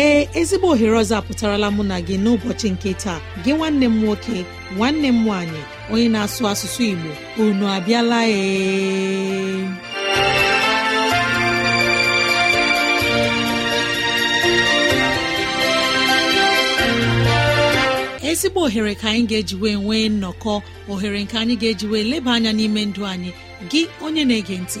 ee ezigbo ohere ọzọ apụtarala mụ na gị n'ụbọchị nke taa gị nwanne m nwoke nwanne m nwanyị, onye na-asụ asụsụ Igbo unu abịala ee ezigbo ohere ka anyị ga-ejiwe nwee nnọkọ ohere nke anyị ga-ejiwe eji leba anya n'ime ndụ anyị gị onye na-ege ntị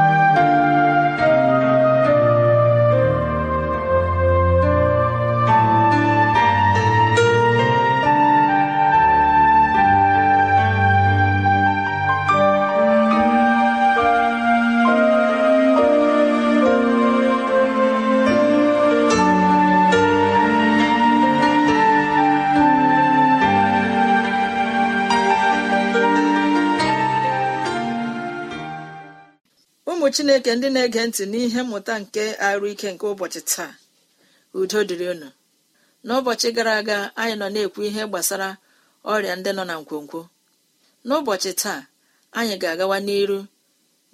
chineke ndị na-ege ntị n'ihe mmụta nke arụ ike nke ụbọchị taa udo dịrị unu n'ụbọchị gara aga anyị nọ na-ekwu ihe gbasara ọrịa ndị nọ na nkwonkwo n'ụbọchị taa anyị ga-agawa n'iru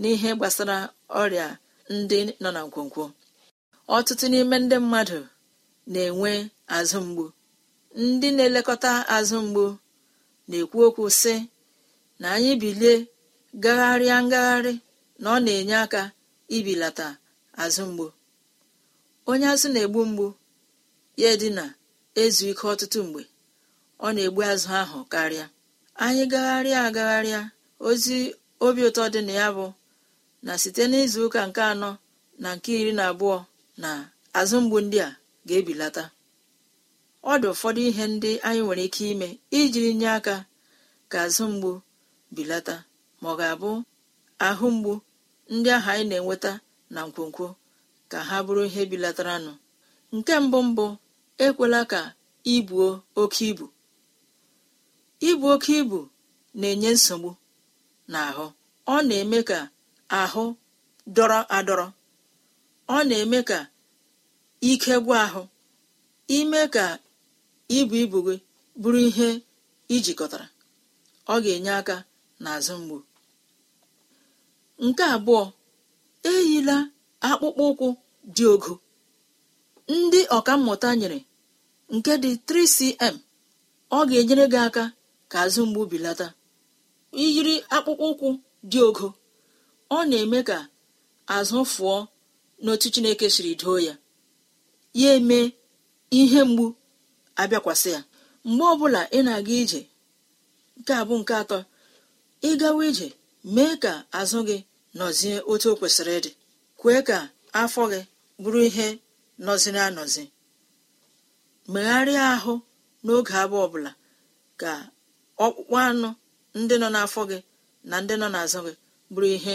n'ihe gbasara ọrịa ndị nọ na nkwonkwo ọtụtụ n'ime ndị mmadụ na-enwe azụ mgbu ndị na-elekọta azụ mgbu na-ekwu okwu sị na anyị bilie gagharịa ngagharị na ọ na-enye aka ibilata azụ mgbu onye azụ na-egbu mgbu ya na ezu ike ọtụtụ mgbe ọ na-egbu azụ ahụ karịa anyị gagharịa agagharịa ozi obi ụtọ dị na ya bụ na site n'izu ụka nke anọ na nke iri na abụọ na azụ mgbu ndị a ga-ebilata ọ dị ụfọdụ ihe ndị anyị nwere ike ime iji nye aka ka azụ mgbu bilata ma ọ ga-abụ ahụ mgbu ndị ahụ anyị na-enweta na nkwonkwo ka ha bụrụ ihe bilataranụ nke mbụ mbụ ekwela ka ibuo oke ibu ibu oke ibu na-enye nsogbu n'ahụ ọ na-eme ka ahụ dọrọ adọrọ ọ na-eme ka ike gwụ ahụ ime ka ibu ibu gị bụrụ ihe ijikọtara ọ ga-enye aka n'azụ mgbu nke abụọ eyila akpụkpọ ụkwụ dị ogo ndị ọkammụta nyere nke dị 3cm ọ ga-enyere gị aka ka azụ mgbu bilata iyiri akpụkpọ ụkwụ dị ogo ọ na-eme ka azụ fụọ n'otu chineke siri doo ya ya eme ihe mgbu abịakwasị ya mgbe ọbụla ị na-aga ije nke a bụ nke atọ ị gawa ije mee ka azụ gị nọzie otu o kwesịrị ịdị kwee ka afọ gị bụrụ ihe nọziri anọzi megharịa ahụ n'oge abụọ ọbụla ka ọkpụkpụ anụ ndị nọ n'afọ gị na ndị nọ n'azụ gị bụrụ ihe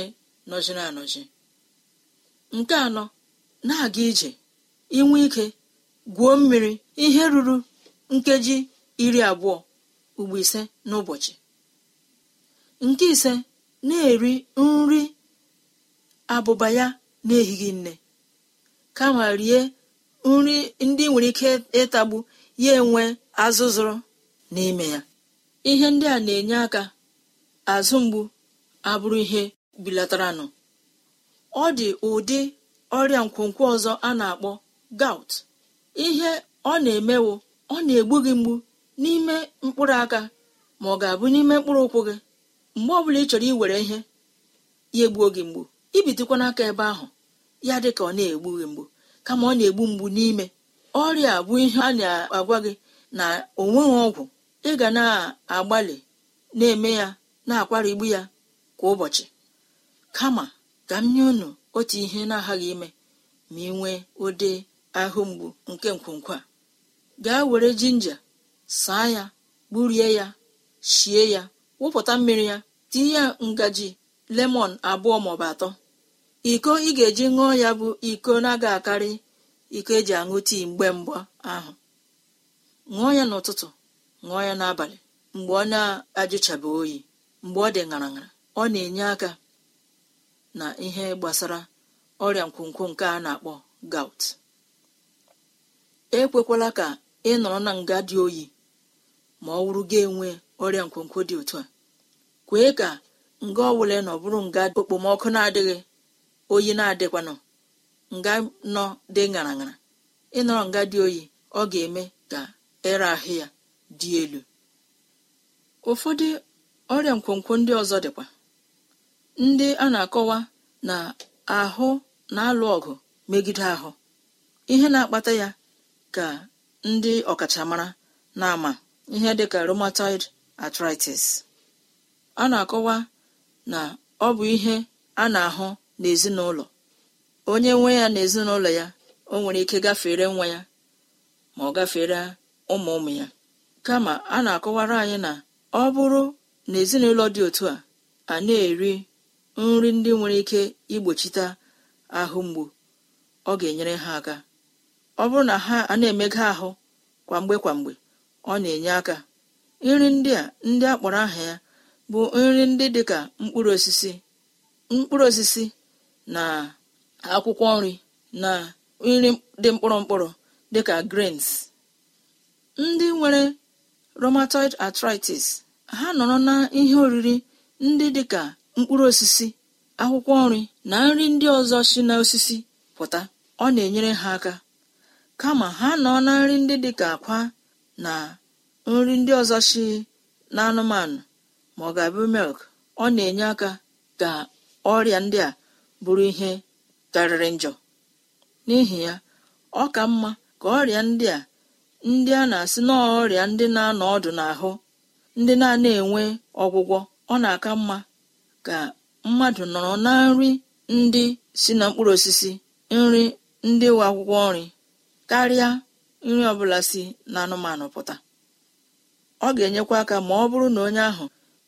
nọziri anọzi nke anọ na-aga ije inwe ike gwuo mmiri ihe ruru nkeji iri abụọ ugbo ise n'ụbọchị nke ise na-eri nri abụba ya na-ehighị nne kama rie nri ndị nwere ike ịtagbu ya enwe azụzụrụ n'ime ya ihe ndị a na-enye aka azụ mgbu abụrụ ihe bilataranụ ọ dị ụdị ọrịa nkwonkwo ọzọ a na-akpọ gout ihe ọ na-emewo ọ na-egbu gị mgbu n'ime mkpụrụ aka ma ọ ga-abụ n'ime mkpụrụ ụkwụ gị mgbe ọbụla ị chọrọ iwere ihe ya egbuo gị mgbu ibitokwa n'aka ebe ahụ ya dị ka ọ na-egbu gị mgbu kama ọ na-egbu mgbu n'ime ọrịa bụ ihe a na-agwa gị na onweghị ọgwụ ị ga na-agbalị na-eme ya na igbu ya kwa ụbọchị kama ka m nye unu otu ihe na-aghaghị ime ma ị nwee ụdị ahụ mgbu nke nkwonkwo a gaa were jinja saa ya gburie ya shie ya wụpụta mmiri ya tinye ya ngaji lemọn abụọ maọbụ atọ iko ị ga-eji ṅụọ ya bụ iko na-aga akarị iko eji aṅụ tii mgbe mgba ahụ ṅụọ ya n'ụtụtụ ṅụọ ya n'abalị mgbe ọ na-ajụchabeghị oyi mgbe ọ dị ṅara ṅara ọ na-enye aka na ihe gbasara ọrịa nkwonkwo nke a na-akpọ gout ekwekwala ka ị nọrọ na nga dị oyi ma ọ wụrụ gị enwe ọrịa nkwonkwo dị otu a kwee ka nga ọbụla nọ bụrụ nga okpomọkụ na-adịghị oyi na-adịkwanụ nga nọ dị ṅara ịnọrọ nga dị oyi ọ ga-eme ka ere ahụ ya dị elu ụfọdụ ọrịa nkwonkwo ndị ọzọ dịkwa ndị a na-akọwa na ahụ na-alụ ọgụ megide ahụ ihe na-akpata ya ka ndị ọkachamara na-ama ihe ka rheumatoid arthritis a na-akọwa na ọ bụ ihe a na-ahụ n'ezinụlọ onye nwe ya na ezinụlọ ya o nwere ike gafere nwa ya ma ọ gafere ụmụ ụmụ ya kama a na-akọwara anyị na ọ bụrụ na ezinụlọ dị otu a a na-eri nri ndị nwere ike igbochite ahụ mgbu ọ ga-enyere ha aka ọ bụrụ na ha a na-emega ahụ kwamgbe kwamgbe ọ na-enye aka nri ndị a ndị a kpọrọ aha ya bụ nri ndị dị ka mkpụrụ osisi mkpụrụ osisi na akwụkwọ nri na nri dị mkpụrụ mkpụrụ dịka grains ndị nwere rheumatoid arthritis ha nọrọ na ihe oriri ndị dịka mkpụrụ osisi akwụkwọ nri na nri ndị ọzọ si osisi pụta ọ na-enyere ha aka kama ha nọ na nri ndị dịka akwa na nri ndị ọzọ si anụmanụ ma ọ ga-abụ milk ọ na-enye aka ka ọrịa ndị a bụrụ ihe karịrị njọ n'ihi ya ọ ka mma ka ọrịa ndị a ndị a na-asị n'ọrịa ndị na-anọ ọdụ n'ahụ ndị na-ana enwe ọgwụgwọ ọ na-aka mma ka mmadụ nọrọ na nri ndị si na mkpụrụ osisi nri ndị nwe akwụkwọ nri karịa nri ọbụla si na anụmanụ pụta ọ ga-enyekwa aka ma ọ bụrụ na onye ahụ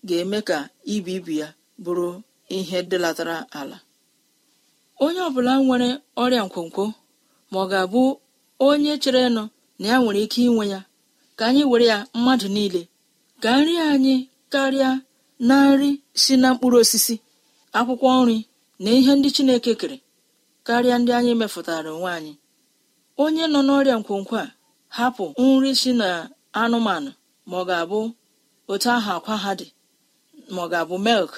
ga-eme ka ibu ibu ya bụrụ ihe dịlatara ala onye ọbụla nwere ọrịa nkwonkwo ma ọ ga-abụ onye chere nụ na ya nwere ike inwe ya ka anyị were ya mmadụ niile ka nri anyị karịa na nri si na mkpụrụ osisi akwụkwọ nri na ihe ndị Chineke kere karịa ndị anyị mefụtara onwe anyị onye nọ n'ọrịa nkwonkwo a hapụ nri si na anụmanụ ma ọ ahụ akwa ha dị ma ọ ga-abụ milk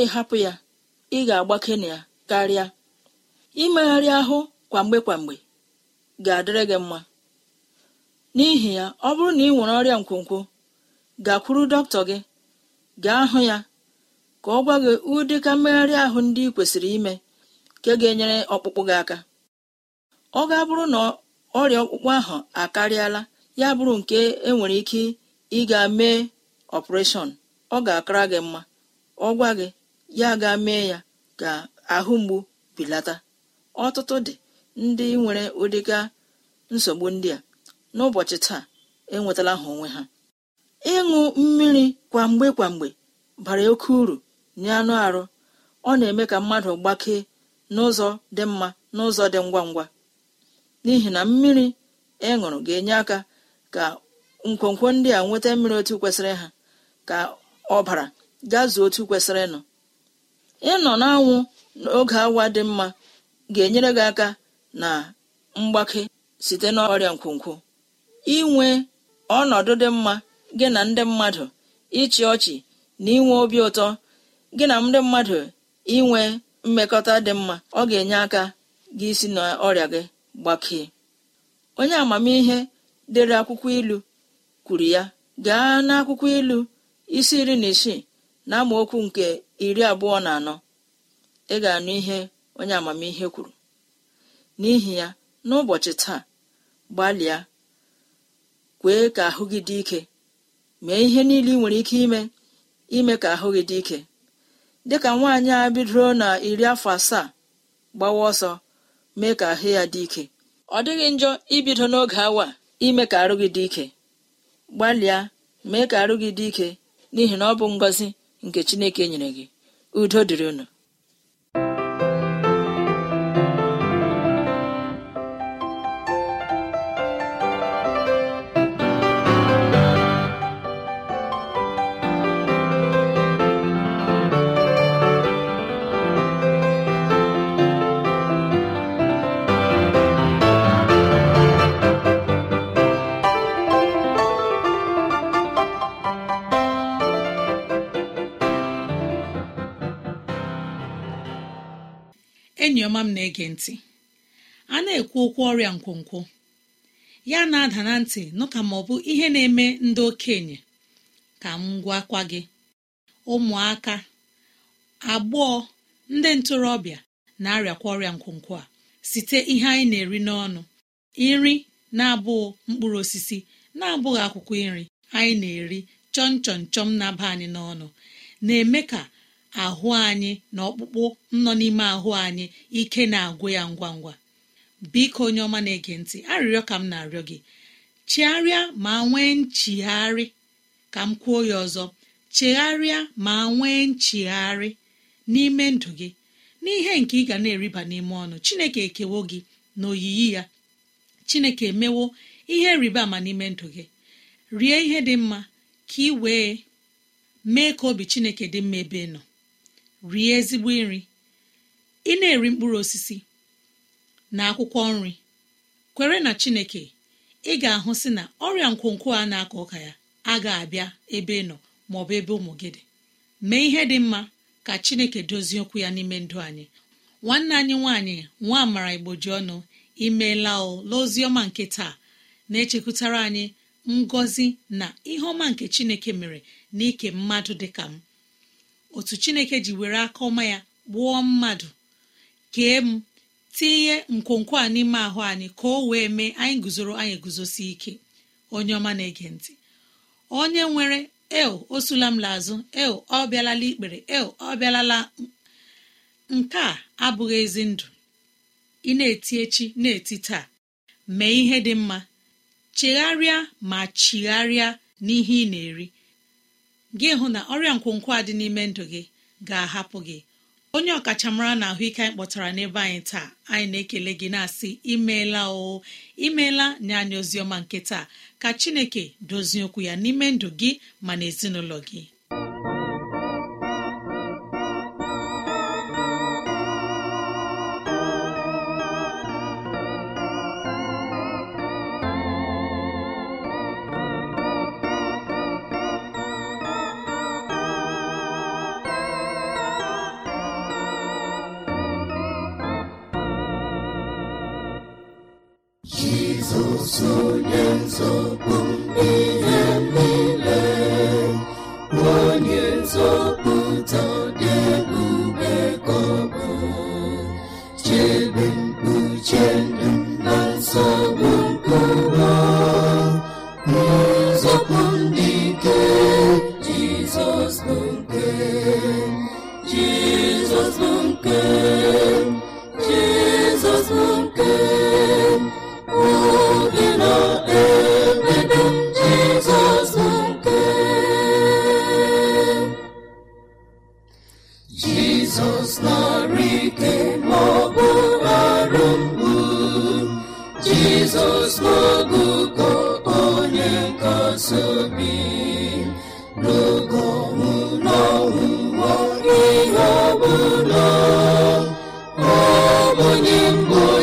ịhapụ ya ị ga-agbake na ya karịa imegharị ahụ kwamgbe kwamgbe ga-adịrị gị mma n'ihi ya ọ bụrụ na ị nwere ọrịa nkwonkwo gakwuru dọkịta gị gaa hụ ya ka ọ gwa gị ụdị ka mmegharị ahụ ndị ị kwesịrị ime nke ga-enyere ọkpụkpụ gị aka ọ ga-abụrụ na ọrịa ọkpụkpụ ahụ akarịala ya bụrụ nke enwere ike ịga mee ọpụreshọn ọ ga-akara gị mma ọ gwa gị ya ga mee ya ka ahụ mgbu belata ọtụtụ dị ndị nwere ụdịga nsogbu ndị a n'ụbọchị taa enwetala ha onwe ha ịṅụ mmiri kwamgbe kwamgbe bara oke uru nye anụ arụ ọ na-eme ka mmadụ gbakee n'ụzọ dị mma n'ụzọ dị ngwa ngwa n'ihi na mmiri ị e ṅụrụ ga-enye aka ka nkwonkwo ndị a nweta mmiri otu kwesịrị ha ka ọbara gaa otu kwesịrị ịnụ ịnọ n'anwụ n'oge awa dị mma ga-enyere gị aka na mgbake site n'ọrịa nkwonkwo inwe ọnọdụ dị mma gị na ndị mmadụ ịchị ọchị na inwe obi ụtọ gị na ndị mmadụ inwe mmekọta dị mma ọ ga-enye aka gị si n'ọrịa gị gbakee onye amamihe dere akwụkwọ ilu kwuru ya gaa n'akwụkwọ ilu isi iri na isii na amaokwu nke iri abụọ na anọ ị ga-anụ ihe onye amamihe kwuru n'ihi ya n'ụbọchị taa gbalịa kwee ka ahụ gị dị ike mee ihe niile ị nwere ike ime ime ka ahụ gị dị ike dịka nwaanyị a bidoro na iri afọ asaa gbawa ọsọ mee ka ahụ ya dị ike ọ dịghị njọ ibido n'oge awa ime ka arụ gị dị ike gbalịa mee ka arụ gị dị ike n'ihi na ọ bụ ngọzi nke chineke nyere gị udo dịrị unu na-ege ntị a na-ekwu okwu ọrịa nkwonkwo ya na-ada na ntị nụka ma ọ bụ ihe na-eme ndị okenye ka m gwakwa gị ụmụaka agbọọ ndị ntorobịa na-arịakwa ọrịa nkwonkwo a site ihe anyị na-eri n'ọnụ nri na-abụghị mkpụrụ osisi na-abụghị akwụkwọ nri anyị na-eri chọm chọm chọm na-aba anyị n'ọnụ na-eme ka ahụ anyị na ọkpụkpụ nọ n'ime ahụ anyị ike na-agwụ ya ngwa ngwa biko onye ọma na-ege ntị arịrịọ ka m na-arịọ gị Chegharịa ma nwee nchigharị ka m kwuo ya ọzọ chegharịa ma nwee nchigharị n'ime ndụ gị n'ihe nke ị ga na-eriba n'ime ọnụ chineke ekewo gị na oyiyi ya chineke emewo ihe rịba ama n'ime ndụ gị rie ihe dị mma ka ị wee mee ka obi chineke dị mma ebe nọ rie ezigbo nri ị na-eri mkpụrụ osisi na akwụkwọ nri kwere na chineke ị ga-ahụ si na ọrịa nkwonkwo a na-akọ ọka ya agaghị abịa ebe ị nọ maọbụ ebe ụmụ gị dị mee ihe dị mma ka chineke dozie okwu ya n'ime ndụ anyị nwanne anyị nwaanyị nwa amara ji ọnụ imeela ọma nke taa na-echekwutara anyị ngọzi na ihe ọma nke chineke mere na ike mmadụ dị ka m otu chineke ji were aka ọma ya gbuo mmadụ kee m tinye nkwonkwo a n'ime ahụ anyị ka o wee mee anyị guzoro anyị guzosi ike onye ọma na-ege ntị onye nwere eo osula m lazụ el ọ bịalala ikpere eo ọ bịalala nke a abụghị ezi ndụ ị na-eti echi na-eti taa mee ihe dị mma chegharịa ma chigharịa n'ihe ị na-eri gị hụ na ọrịa nkwonkwo a dị n'ime ndụ gị ga-ahapụ gị onye ọkachamara na ahụike anyị kpọtara n'ebe anyị taa anyị na-ekele gị na-asị imeela o imeela nye anyị ozi ọma nke taa ka chineke dozie okwu ya n'ime ndụ gị ma na ezinụlọ gị onye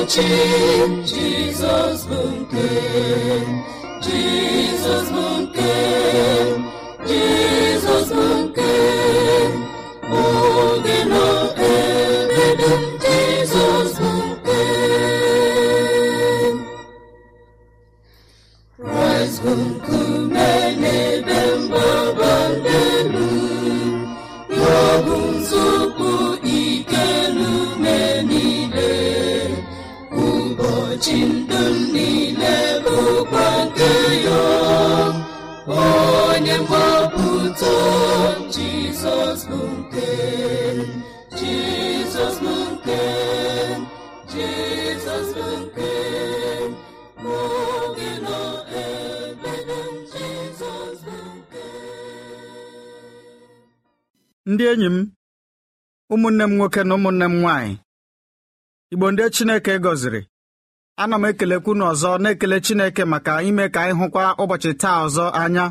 ochi Jizọs bụ nke Jizọs bụ nke ụbọchị ndụ m niile bụkwa nke ya onye mgbapụta jizọs bụ nke jizọs bụ nke jizọs bụ nke n'oge nọ ebe jizọs bụ nke ndị enyi m ụmụnne m nwoke na ụmụnne m nwaanyị igbo ndị chineke gọziri ana m ekelekwu unu ọzọ na-ekele Chineke maka ime ka anyị hụkwa ụbọchị taa ọzọ anya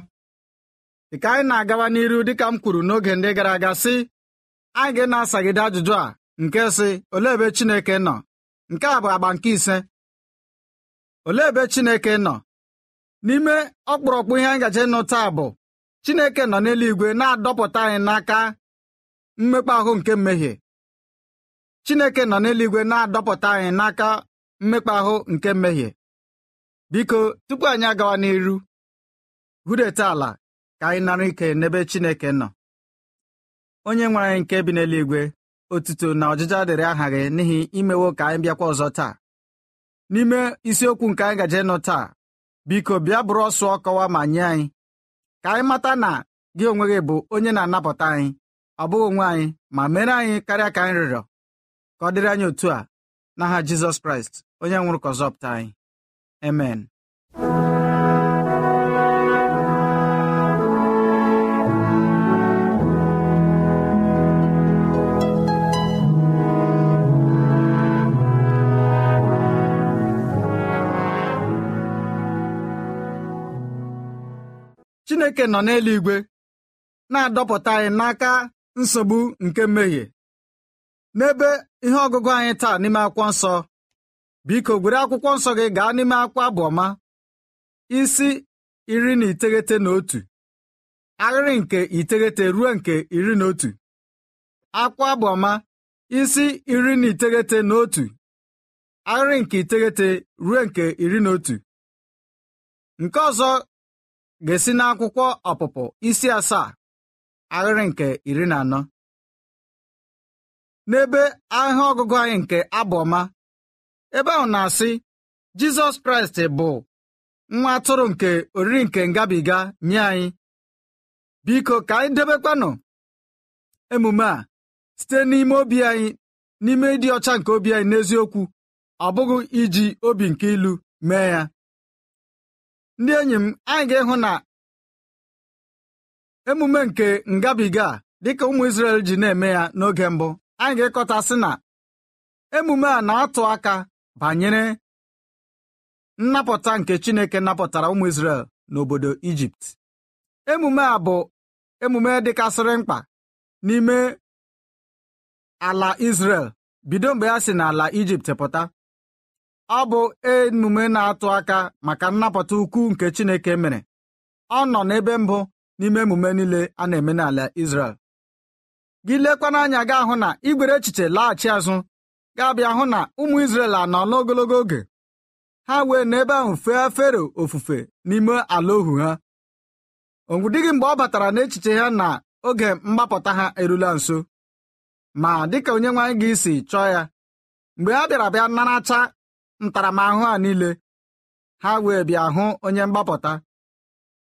Dịka anyị na-agawa n'iru dịka m kwuru n'oge ndị gara aga sị anyị ga-na-asagide ajụjụ a nke sị olee ebe Chineke nọ nke a bụ agba nke ise olee ebe Chineke nọ n'ime ọkpụrụkpụ ihe anyị gaje ịnụ taa bụ Chineke nọ n'eluigwe na-adọpụta anyị n'aka mmekpa ahụ nke mmehie Chineke nọ n'eluigwe na-adọpụta anyị n'aka mmekpa ahụ nke mmehie biko tupu anyị agawa n'iru hudeta ala ka anyị nara ike n'ebe Chineke nọ onye nwe anyị nke bi n'eluigwe otuto na ọjịja dịrị aha gị n'ihi imewo ka anyị bịakwa ọzọ taa n'ime isiokwu nke anyị gaje nụ taa biko bịa bụrụ ọsụ ọkọwa ma nye anyị ka anyị mata na gị onwe gị bụ onye na-anapụta anyị ọ bụghị onwe anyị ma mere anyị karịa ka anyị rịọrọ ka ọ dịrị anyị otu a n'aha Jizọs Kraịst onye nwụrụ ka anyị amen chineke nọ n'eluigwe na-adọpụta anyị n'aka nsogbu nke mmehie n'ebe ihe ọgụgụ anyị taa n'ime akwụkwọ nsọ biko gwere akwụkwọ nsọ gị gaa n'ime akwụkwọ abụọma isi iri na iteghete na otu ahịrị nke iteghete ruo nke iri na otu akwụkwọ abụọma isi iri na iteghete na otu ahịrị nke iteghete ruo nke iri na otu nke ọzọ ga-esi n'akwụkwọ ọpụpụ isi asaa ahịrị nke iri na anọ n'ebe ahịa ọgụgụ anyị nke abụọma ebe ahụ na-asị Jizọs Kraịst bụ nwa atụrụ nke oriri nke ngabiga nye anyị biko ka anyị debekwanụ emume a site n'ime obi anyị n'ime ịdị ọcha nke obi anyị n'eziokwu ọ bụghị iji obi nke ilu mee ya ndị enyi m anyị ga-ịhụ na emume nke ngabiga dịka ụmụ Izrel ji na-eme ya n'oge mbụ anyị ga-ekọta na emume a na-atụ aka banyere nnapụta nke chineke napụtara ụmụ isrel n'obodo ijipt emume a bụ emume dịkasịrị mkpa n'ime ala isrel bido mgbe ya si n'ala ijipt pụta ọ bụ emume na-atụ aka maka nnapụta ukwu nke chineke mere ọ nọ n'ebe mbụ n'ime emume niile a na-eme n'ala Izrel gị lekwa n'anya gị ahụ na igwere echiche laghachi azụ ga-abịa hụ na ụmụ Izrel anọ n'ogologo oge ha wee n'ebe ahụ fee fero ofufe n'ime ala ohu ha onwu gị mgbe ọ batara n'echiche ya na oge mgbapụta ha erula nso ma dịka onye nwaanyị gị esi chọọ ya mgbe ha bịara bịa naracha ntaramahụhụ a niile ha wee bịa hụ onye mgbapụta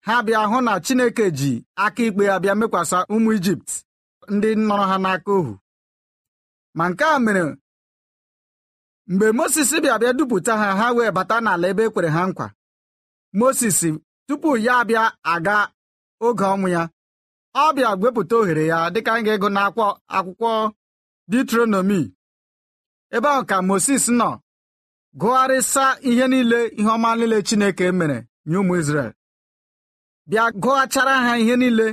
ha bịa hụ na Chineke ji aka ikpe ya bịa mekwasa ụmụ Ijipt ndị nọrọ ha n'aka ohu ma nke a mere mgbe Mozis bịa bịa dupụta ha ha wee bata n'ala ebe e kwere ha nkwa Mozis tupu ya abịa aga oge ọnwụ ya ọ bịa gwepụta ohere ya dịka anyị ga-ego n'akwụkwọ akwụkwọ detronomi ebe ahụ ka Mozis nọ gụgharịsa ihe niile ihe ọma niile Chineke mere nye ụmụ Izrel bịa gụghachara ha ihe niile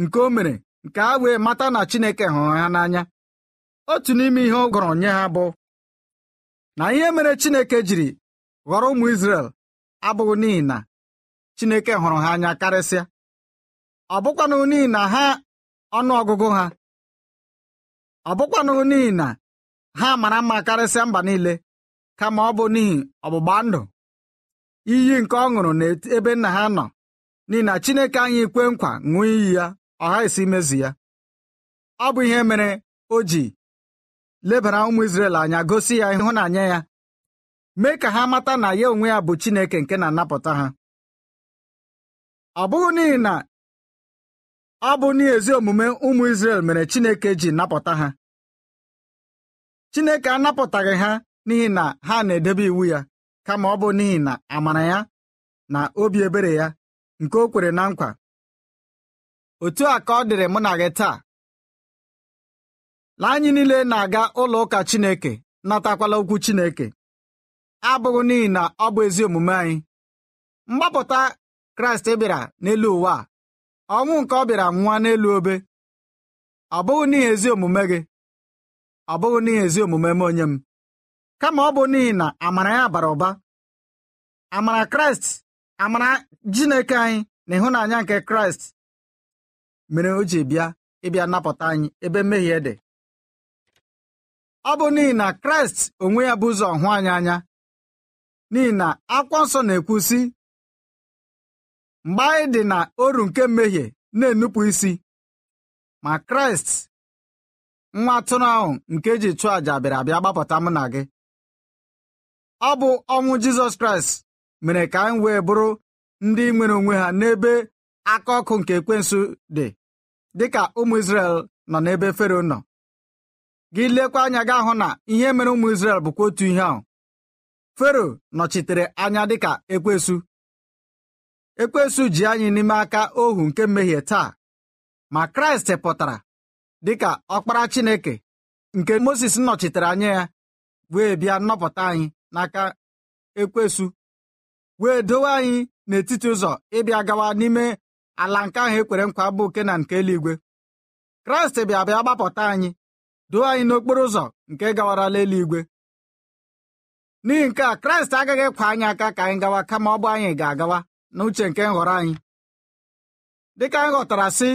nke o mere nke ha wee mata na Chineke hụrụ ha n'anya otu n'ime ihe ọ gụrụ nye ha bụ na ihe mere Chineke jiri ghọrọ ụmụ isrel abụghị n'ihi na Chineke hụrụ ha anya karịsịa ọ bụkwanụ n'ihi na ha ọnụọgụgụ ha ọ bụkwanụ n'ihi na ha mara mma karịsịa mba niile kama ọ bụ n'ihi ọgbụgba ndụ iyi nke ọ ṅụrụ n'ebe nna ha nọ n'ihi na Chineke anyị kwe nkwa ṅụọ iyi ya ọ esi imezi ya ọ bụ ihe mere o ji lebara ụmụ Izrel anya gosi ya ịhụnanya ya mee ka ha mata na ya onwe ya bụ Chineke nke na-anapụta ha ọ bụghị n'ihi na ọ bụ n'ezi omume ụmụ Izrel mere Chineke ji napụta ha Chineke anapụtaghị ha n'ihi na ha na-edebe iwu ya kama ọ bụ n'ihi na amara ya na obi ebere ya nke o kwere na nkwa otu a ka ọ dịrị mụ na gị taa la anyị niile na-aga ụlọ ụka Chineke natakwala okwu Chineke abụghị n'ihi na ọ bụ ezi omume anyị mgbapụta Kraịst e bịara n'elu ụwa ọnwụ nke ọ bịara nwa n'elu obe ọ bụghị n'ihi ezi omume gị ọ bụghị n'ihi ezi omume m onye m kama ọ bụ n'ihi na amara ya bara ụba amara Kraịst amara jineke anyị na ịhụnanya nke Kraịst mere o ji bịa ịbịa napụta anyị ebe mmehie dị ọ bụ n'ihi na kraịst onwe ya bụ ụzọ hụ anyị anya n'ihi na akwụkwọ nsọ na-ekwu sị mgbe anyị dị na oru nke mmehie na-enupụ isi ma kraịst nwa atụrụ ahụ nke e ji chụọ àjà bịara abịa gbapụta mụ na gị ọ bụ ọnwụ jizọs kraịst mere ka anyị wee bụrụ ndị nwere onwe ha n'ebe aka ọkụ nke ekwensu dị dịka ụmụ Izrel nọ n'ebe fero nọ gị lekwa anya gị ahụ na ihe mere ụmụ Izrel bụkwa otu ihe ahụ fero nọchitere anya dịka ekwesu ekwesu ji anyị n'ime aka ohu nke mmehie taa ma kraịst pụtara dịka ọkpara chineke nke moses nọchitere anya ya wee bịa nnọpụta anyị n'aka ekwesu wee dowe anyị n'etiti ụzọ ịbịa gawa n'ime ala nke ahụ ekwere nkwa bụ nke na nke eluigwe kraịst bịa bịa gbapụta anyị duo anyị n'okporo ụzọ nke gawarala eluigwe n'ihi nke a kraịst agaghị kwa anyị aka ka anyị gawa kama ọ bụ anyị ga-agawa n'uche nke nhọrọ anyị dịka anyị ghọtara sị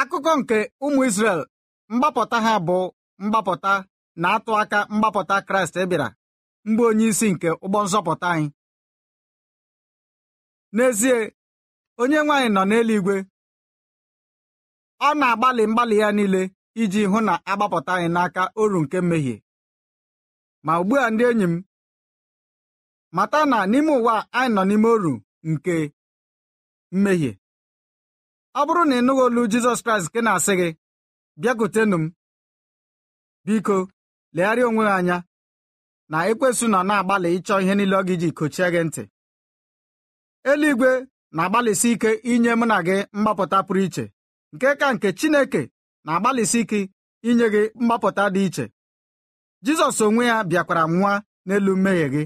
akụkọ nke ụmụ isrel mgbapụta ha bụ mgbapụta na-atụ aka mgbapụta kraịst e bịara mgbe onye isi nke ụgbọ nzọpụta anyị n'ezie onye nwaanyị nọ n'eluigwe ọ na-agbalị mgbalị ya niile iji hụ na agbapụta anyị n'aka oru nke mmehie ma ugbu a ndị enyi m mata na n'ime ụwa anyị nọ n'ime oru nke mmehie ọ bụrụ na ị nụghị olu Jizọs Kraịst nke na-asị gị bịakwutenụ m biko legharịa onwe gị anya na ekwesu nọ na-agbalị ịchọ ihe niile ọ gị ji kochie gị ntị eluigwe na-agbalịsi ike inye mụ na gị mgbapụta pụrụ iche nke ka nke Chineke na-agbalịsi ike inye gị mgbapụta dị iche Jizọs onwe ya bịakwara nwa n'elu mmehie gị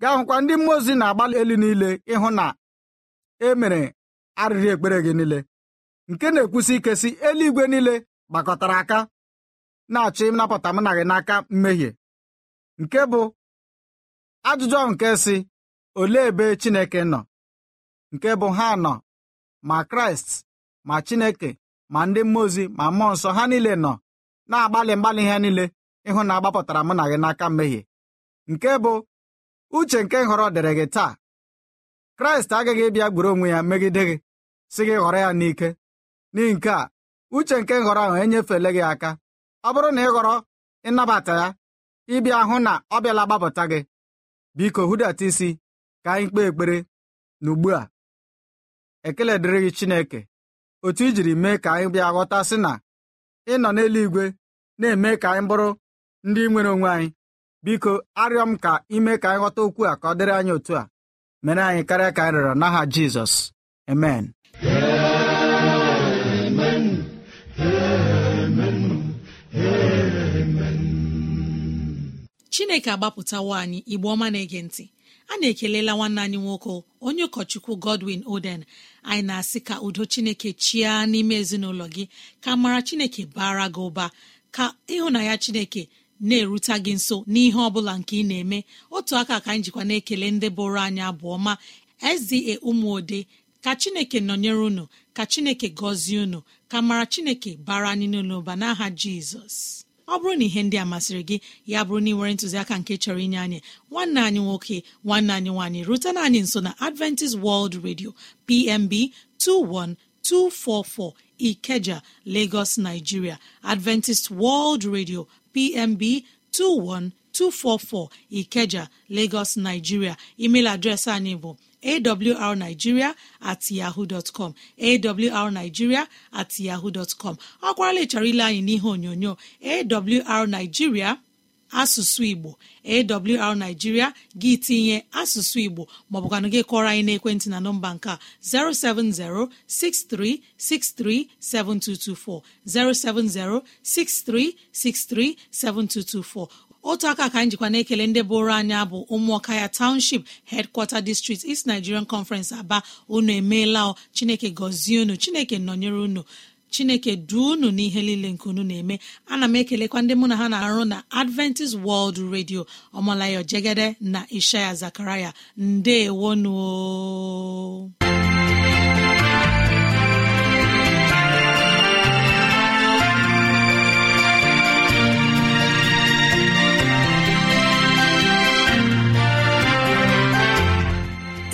gaa hụkwa ndị mmụọ ozi na-agbalị elu niile ịhụ na e mere arịrị ekpere gị niile nke na-ekwusi ike si eluigwe niile gbakọtara aka na-achọ ịnapụta mụ na gị n'aka mmehie nke bụ ajụjụ ahụ nke si olee ebe Chineke nọ nke bụ ha nọ ma Kraịst ma Chineke ma ndị mmụọ ozi ma mmụọ nsọ ha niile nọ na-agbalị mgbalị ha niile ịhụ na agbapụtara mụ na gị n'aka mmehie nke bụ uche nke nhọrọ dịrị gị taa kraịst agaghị ịbịa gburu onwe ya megide gị si gị ghọrọ ya n'ike n'ihi nke a uche nke nhọrọ ahụ enyefele gị aka ọ bụrụ na ị ghọrọ ịnabata ya ịbịa hụ na ọ bịala gbapụta gị biko hudata isi ka anyị kpee ekpere na ugbu a ekele dịrị gị Chineke otu i jiri mee ka anyị bịa ghọta sị na ị nọ n'eluigwe na-eme ka anyị bụrụ ndị nwere onwe anyị biko arịọ m ka ime ka anyị ghọta okwu a ka ọ dịrị anyị otu a mere anyị karịa ka anyị rịọrọ n'aha Jizọs amen chineke agbapụtawo anyị igbe ọma na-ege ntị a na-ekelela nwanne anyị nwoke onye ụkọchukwu godwin oden anyị na-asị ka udo chineke chia n'ime ezinụlọ gị ka mara chineke bara gị ụba ka ịhụnanya chineke na-erute gị nso n'ihe ọ bụla nke ị na-eme otu aka ka anyị jikwa na-ekele ndị bụrụ anyị abụọ ma SDA ụmụode ka chineke nọnyere unu ka chineke gọzie unu ka mara chineke bara anyị n'ụlọ ụba n'aha jizọs ọ bụrụ na ihe ndị a masịrị gị ya bụrụ na ị nwere ntụziaka nke chọrọ inye anyị nwanne anyị nwoke nwanne anyị nwaanyị rutena anyị nso na adventist world radio pmb 21244 ikeja lagos nigeria adventist world radio pmb 21244 ikeja lagos nigeria email adreesị anyị bụ awrnigeria at yahoo com awrnigeria at yahoo dọtcọm ọ kwarala ịchọrọ ile anyị n'ihe onyonyo awrnigeria asụsụ igbo awrnigeria gị tinye asụsụ igbo maọbụkwanụ gị kọrọ anyị n'ekwentị na nọmba nke a 07063637224 7224. otu aka ka anyị jikwa na-ekele ndị bụrụ anyị abụ ụmụọka ya township headquarter district East Nigerian Conference Aba unu emeela ọ Chineke gọzie unu Chineke nọnyere unu chineke duo unu n'ihe niile nke unu na-eme ana m ekelekwa ndị mụ na ha na-arụ na adventist world radio ọmalayo jegede na ishaya zakaraya ndeewonu